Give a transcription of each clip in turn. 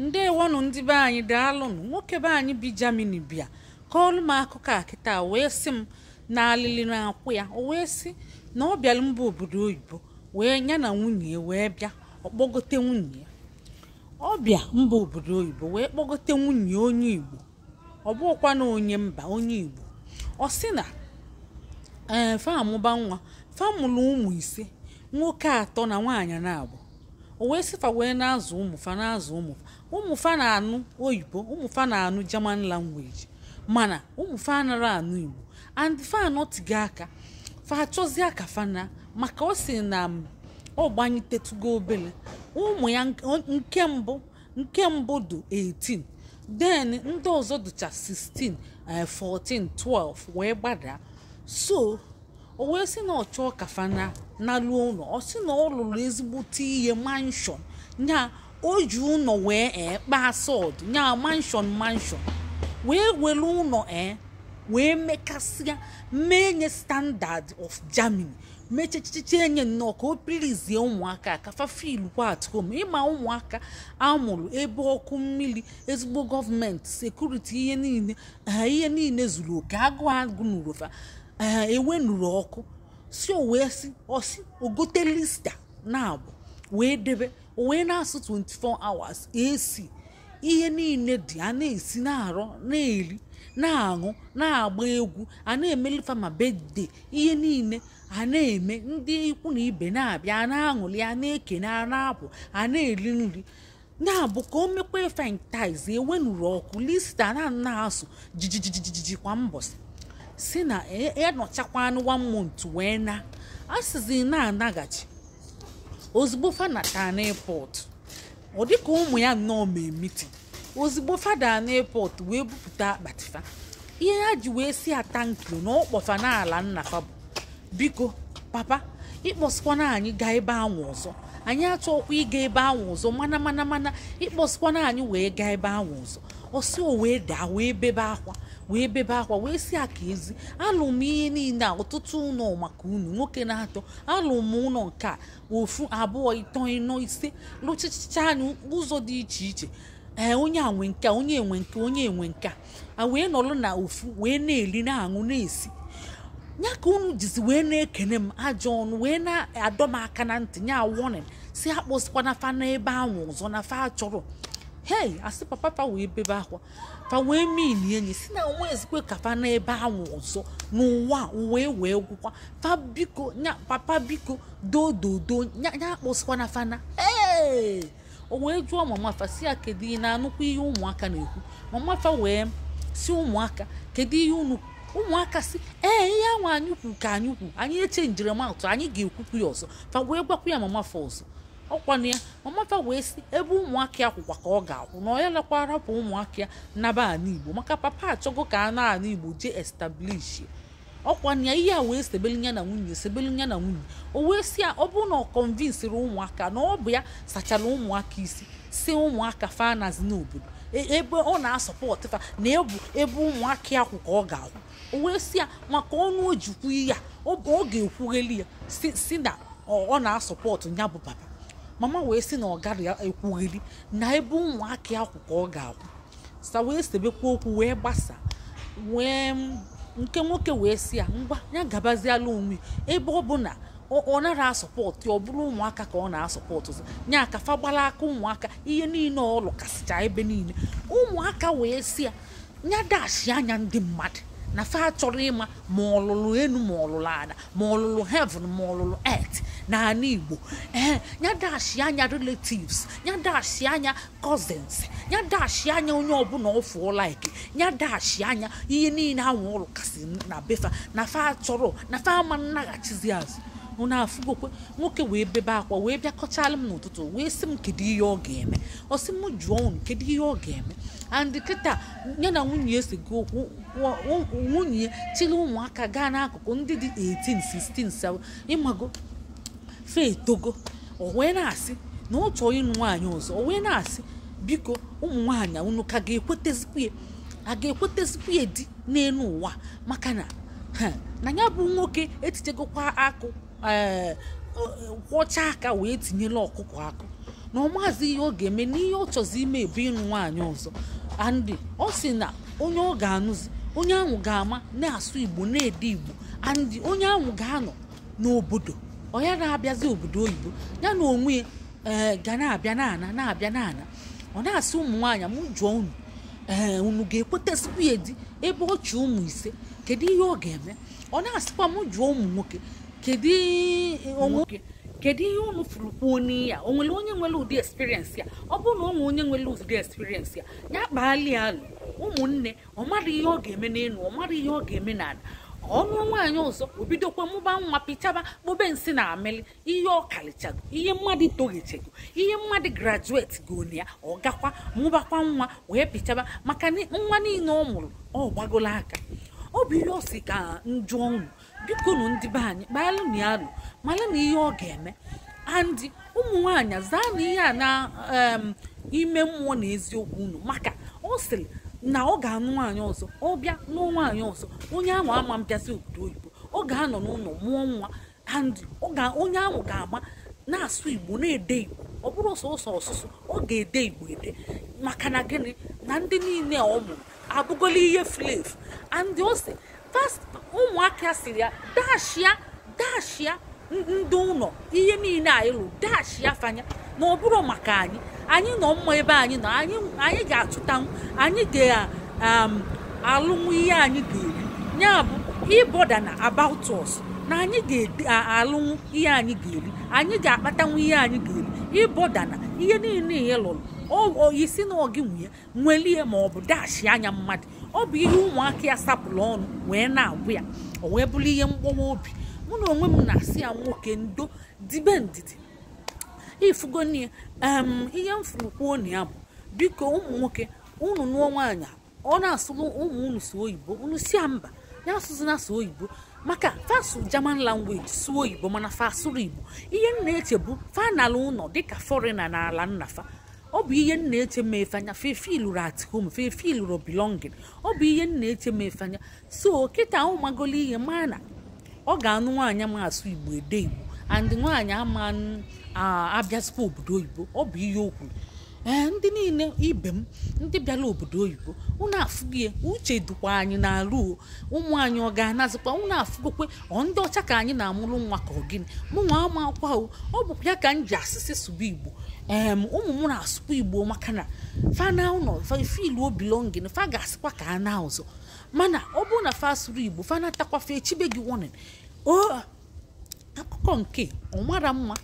ndewonụ ndị be anyị daalụnụ nwoke be anyị bi Germany bịa kọọlụ m akụkọ a wee sị m na alili na-akwụ ya o wee sị na ọ bịara mba obodo oyibo wee nya na nwunye wee bịa ọkpọgote nwunye ya ọ bịa mba obodo oyibo wee kpọgote nwunye onye igbo ọ bụkwa na onye mba onye igbo ọ sị na ee eh, famụba nwa famụlụ ụmụ ise nwoke atọ na nwaanyị na-abụ o wee fa wee na-azụ ụmụfa na-azụ ụmụfa ụmụfa na-anụ oyibo ụmụfa na-anụ german language mana ụmụfa anara anụ igbo and fa anọtighị aka fa achọzie aka fana maka ọ sị na ọ gbanyetetugo obele ụmụ ya nke mbụ nke mbụ dị 18 then ndị ọzọ dịcha 16 14 12 wee gbadaa so o wee sị na ọ chọọ kafa na ụlọ ọ sị na ọ lụrụ ezigbote ihe manshọn ya o ji ụlọ wee ee kpaa sọd nya manshọn manshọn wee were ụlọ ee wee mekasịa mee nye standard of germany mechechiche enye nnọọ ka o pirizie ụmụaka kafa fil at home ịma ụmụaka amụrụ ebe ọkụ mmiri ezigbo gọọmenti sekuriti ihe niile ihe niile zuru oke agụụ agụ n'urofa nụrụ ọkụ si o wee si osi ogote lista na abụ wee debe owe na-asụ 24 hours esi ihe niile dị a na-esi na-arọ na-eri na-aṅụ na-agba egwu a na-emeli fama bedde ihe niile a na-eme ndị ikwu na ibe na-abịa ana na-aṅụli a na-ekene ana na-apụ eri nri na-abụ ka o mekwa efentiz enwenuru ọkụ lista na na-asụ jijijijiji kwa mbọsị si na ịnọchakwa e, e anụ one wee na asịzi na-anaghachi ozugbo fada taa ọ dịka ụmụ ya nnọọ mee mitin ozugbo fada n'airport wee bupụta akpatifa ihe ha ji wee si ata nkiri na ọkpọfa n'ala nna bụ biko papa ịkpọsịkwana anyị gaa ebe ahụ ọzọ anyị achọkwa ịga ebe ahụ ọzọ mana mana mana ịkpọsịkwana anyị wee gaa ebe ahụ ọzọ ọsọ wee daa wee bebe akwa wee bebe akwa wee si aka ezi alụ m ihe niile a ọtụtụ ụlọ maka unu nwoke na-atọ alụ m ụlọ nke a ofu abụọ ịtọ ịnọ ise lụchicha anyị ụzọ dị iche iche ee onye a nwe nke onye enwe nke onye enwe nke a wee nọrọ na ofu wee na-eri na-aṅụ na-esi ya ka unu jizi wee na-ekene m ajọ ọnụ wee na-adọ m aka na ntị nya wọnin si akpọsikwana fa n'ebe ahụ ọzọ na fa chọrọ hei asị papa pa wee bebe akwa fa wee mili enyi si na nwezikwe ka kapa na ebe ahụ ọzọ n'ụwa uwe wee gwụkwa Fa biko papa biko dododo nya akpọsikwana fana ee o wee jụọ mama fa si ya kedu ị na-anụkwa ihe ụmụaka na-ekwu mama fa wee si ụmụaka kedu ihe unu ụmụaka si ee ihe ahụ anyị kwu ka anyị kwu anyị eche njirimata anyị ga-ekwukwu ya ọzọ fa wee gwakwa ya mama fa ọzọ ọkwana ya wee si ebe ụmụaka ya ka ọ ga-akwụ na onye lekwa rapụ ụmụaka ya naba ala igbo maka papa achọgo ka a na ala igbo jee establishi ọkwana ya ihe a wee sebelu ya na nwunye sebelu ya na nwunye o wee si ya ọ bụrụ na ọ kọnvinsiri ụmụaka na ọ bụ ya sachara ụmụaka isi si ụmụaka fanazi n'obodo e, ebe ọ na-asọpọtụ fa na ebu ebe ụmụaka ya ka ọ ga-akwụ o wee si ya maka ọnụ ojikwu ya ọ ga-ekwugheli ya si na ọ na-asọpọtụ ya bụ papa mama wee sị na ọ gaghị ekwugheri na ebe ụmụaka akwụ ka ọ ga-akwụ sa wee sebekwa okwu wee gbasa wee nke nwoke wee sị ya ngwa ya gabazialụ onwe ebe ọ bụ na ọ nara asọpọtụ ọ bụrụ ụmụaka ka ọ na-asọpọtụ ya aka fagbala aka ụmụaka ihe niile ọ lụkasịcha ebe niile ụmụaka wee sị ya nya dashi anya ndị mmadụ na fa achọrọ ịma ma ọlụlụ enu ma ọlụlụ ada ma ọlụlụ heaven ma ọlụlụ earth na ala igbo ee ya dashi anya relatives ya dashi anya cousins ya dashi anya onye ọbụla ọfụọ like ya dashi anya ihe niile anwụ ụlọ kasị na befa na fa achọrọ na fa ama nnaghachizi azụ ọ na-afụgokwe nwoke wee bebe akwa wee bịakọchala m n'ụtụtụ wee sị m kedu ihe ọ ga-eme ọ sị m jụọ unu kedu ihe ọ ga-eme andị kịta ya na nwunye esi gị okwu nwunye chịrị ụmụaka gaa n'akụkụ ndị dị 18 16 ịmago fe etogo o wee na-asị na ọ chọọ ịnụ nwaanyị ọzọ o wee na-asị biko ụmụ nwaanyị unu ka ga-ekwetezikwa ya a ga-ekwetezikwa ya di n'elu ụwa maka na na ya bụ nwoke etichegokwa akụ Eh, eh, kwọcha aka wee tinyela ọkụkọ akụ na maazị ihe ọ ga-eme n'ihe ọ chọzi ime ebe ịnụ nwaanyị ọzọ andị ọ sị na onye ọ ga-anụzi onye ahụ ga-ama na-asụ igbo na-ede igbo andị onye ahụ ga-anọ n'obodo ọya na-abịazi obodo oyibo ya na onwe eh, ga na-abịa n'ana na-abịa n'ana ọ na-asị ụmụ nwaanyị m jụọ unu ee unu ga ekweta ya di ebe ọ chị ụmụ ise kedu ihe ọ ga-eme ọ na-asịkwa m jụọ ụmụ nwoke kedu ihe unu fụrụ kwuo n'iya o nwere onye nwere ụdị experience ya ọ bụrụ na ọ onye nwere ụdị experience ya ya kpaalị alụ ụmụnne ọ mara ihe ọ ga-eme n'elu ọ mara ihe ọ ga-eme na ada ọnụ nwaanyị ọzọ obidokwa mụba nwa pịchaba kpobe nsị na amịlị ihe ọkalichago ihe mmadụ toghichego ihe mmadụ grajueti gona ya ọ gakwa mụbakwa nwa wee pịchaba maka nwa niile ọ mụrụ ọ gbagola aka ọ bụ ihe ọ si ka njụọ biko nụ ndị be anyị kpaalụ na na ihe ọ ga-eme andị ụmụ nwaanyị zaa na ihe a na ime mmụọ na eziokwu unu maka ọ sịrị na ọ ga-anụ nwaanyị ọzọ ọ bịa nụọ nwaanyị ọzọ onye ahụ ama mbịazi obodo oyibo ọ ga-anọ n'ụlọ mụọ nwa andị onye ahụ ga ama na-asụ igbo na-ede igbo ọ bụrụ sọsọ ọsụsụ ọ ga-ede igbo ede maka na gịnị na ndị niile ọ mụrụ abụgola ihe flefu andị ose ụmụaka siri ya dashia dashia ndị ụlọ ihe niile anyị lụrụ dashia fanya na ọ bụrụ maka anyị anyị nọ mma ebe anyị nọ anyị ga atụtanwu um, anyị ga-alụnwu ihe anyị ga-eri ya bụ ịbọda na about us na anyị ga-alụnwu ihe anyị ga-eri anyị ga-akpatanwu ihe anyị ga-eri ịbọda na ihe niile ihe lụrụ isi na ogi nwunye nwelie ma ọ bụ dashi anya mmadụ ọ bụ ihe ụmụaka ya sapụrụ ọnụ wee na-agwụ ya o wee bụrụ ihe mkpọwa obi mụ na onwe m na-asị ya nwoke ndo dibe ndidi ifugo nne ihe m furu na ya bụ biko ụmụ nwoke unu nụọ nwaanyị ọ na-asụrụ ụmụ unu sụ oyibo unu si ya mba ya asụzi na asụ oyibo maka asụ german language sụọ oyibo mana fasụrụ igbo ihe m na-eche bụ fanala ụlọ dịka fọrịna na ala nnafa ọ bụ ihe nna eche m fee anya at home fefe lụrụ belonging ọ bụ ihe na eche m so kịta ahụ magolo ihe ma na ọ ga-anụ nwaanyị ma asụ igbo ede igbo and nwaanyị ama abịazikwa obodo oyibo ọ bụ ihe okwu. ee eh, ndị niile ibe m ndị bịara obodo oyibo unu afụgo ya uche dukwa anyị n'ala ụmụ anyị ọ ga-anazikwa unu afụgokwe ọ ndị ọcha ka anyị na-amụrụ nwa ka ọ gịnị mụ nwa akwụkwọ ahụ ọ bụkwa ya ka m ji asịsị sụba igbo ee ụmụ m na-asụkwa igbo maka na fana ụlọ obilongin fa ga-asịkwa ka a na ụzọ mana ọ bụrụ na fa sụrụ igbo fa natakwafe echibe gị wonin o akụkọ nke ọ mara mma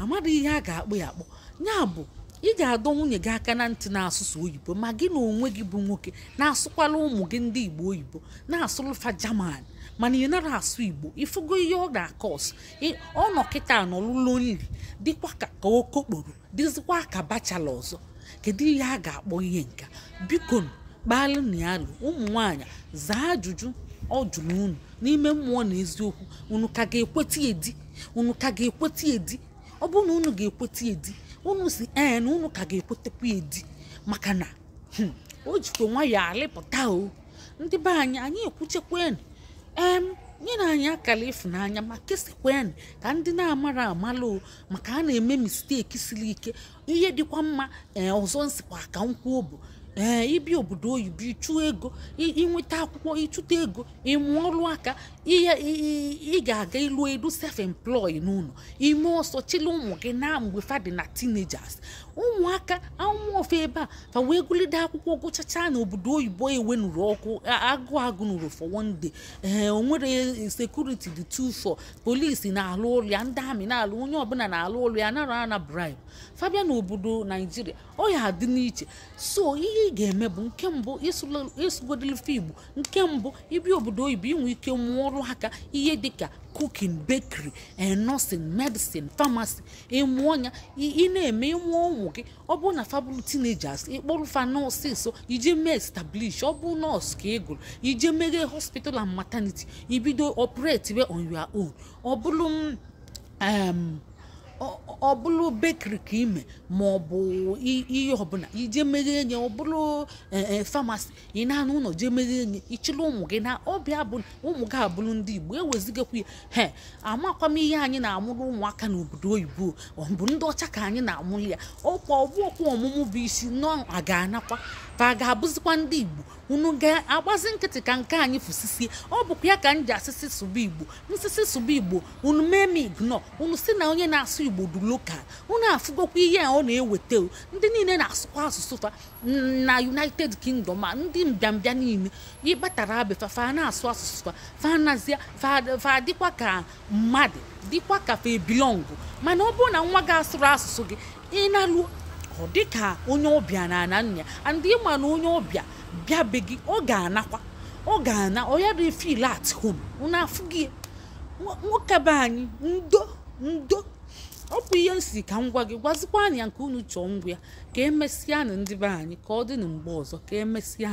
amara ihe a ga-akpụ ya akpọ ya bụ ị ga-adọ nwunye gị aka na ntị na-asụsụ oyibo ma gị na onwe gị bụ nwoke na-asụkwala ụmụ gị ndị igbo oyibo na-asụlụfa jaman mana ị nara asụ igbo ịfụgo ihe ọ ga-akọs ọ nọ kịta nọlụlụ nri dịkwa ka okokporo dịzikwa ka bachala ọzọ kedu ihe a ga-akpọ ihe nka biko kpalụ na ụmụ nwanyị zaa ajụjụ ọ jụrụ unu n'ime mmụọ na eziokwu unu ka ga-ekweta edi unu ka ga-ekweta edi ọ bụrụ na unu ga-ekweta edi unu si en eh, unu ka ga-ekwetekwa edi maka na hmm, o jikwa nwayọ alịpụta o ndị be anyị anyị ekwuchekwen em na anyị akara ịfụnanya ma kesekwen ka ndị na-amara amala o maka a na-eme misteki siri ike ihe dịkwa mma ee eh, ọzọ nsikwa ka nkwụ ee eh, obodo obodo oyibo ịchụ ego inweta akwụkwọ ịchụta ego ịmụ ọrụ aka ị ga-aga ịlụ elu self employ n'ụlọ ime ọsọ chịla ụmụ gị na mgbe fa dị na teenagers ụmụaka anwụ ebe a fa wee gụlide akwụkwọ gụchacha na obodo oyibo e nụrụ ọkụ agụ agụ nụrụ for one day ee onwere sekuriti dị two four polisi na-alụ ụlọ ya ndị amị na-alụ onye ọbụla na-alụ ụlọ ya nara ana bribe fabia na obodo naijiria ọ ya adị n'iche so ihe ị ga-eme bụ nke mbụ ịsụgodilife igbo nke mbụ ịbịa obodo oyibo inwe ike nwụọrụ aka ihe dịka cooking bakery and nursing medicine pharmacy ịmụọ ya ị na-eme ịmụọ ụmụ gị ọ bụrụ na fabụl teenagers ịkpọrụ fa nọọsụ so iji mee establish ọ bụ nọọsụ ka ị gụrụ ije meghe hospital and maternity ibido operate on your own ọ bụrụ m. ọ bụrụ bekiri ka ime ma ọ bụ ihe ọbụla ije mere enye ọ bụrụ famasi e, e, ị na-anụ ụlọ jee mere enye ịchịla ụmụ gị na ọbịa bụ ụmụ gị abụrụ ndị igbo ewezigakwa ya he amakwa m ihe anyị na-amụrụ ụmụaka n'obodo oyibo ọ bụ ndị ọcha ka anyị na-amụrụ ya ọkwa ọmụmụ bụ isi nọ aga anakwa fa ga-abụzikwa ndị igbo unu ga-agbazi nkịtị ka nke anyị fụsisi ọ bụkwa ya ka m ji asịsị sụba igbo nsisi sụba igbo unu mee m unu si na onye na-asụ igbo du lokal unu afụgokwa ihe a ọ na-eweta ndị niile na-asụkwa asụsụ fa na united kingdom a ndị mbịambịa niile ịgbatara abefa fa na-asụ asụsụ fa fa nazia fa dịkwa ka mmadụ dịkwa ka fa e mana ọ bụrụ na nwa gị asụrụ asụsụ gị ị na-alụ ọ dịka onye ọbịa na na nna ya ma na onye ọbịa bịabeghị ọ ga-anakwa ọ ga-ana ọya dị fil at home na afụ gị nwoke be anyị ndo ndo ọ bụ ihe nsi ka m gwa gị gwazikwa anyị nke unu chọọ ngwa ya ka emesịa na ndị be anyị ka ọ dị na mgbe ọzọ ka emesịa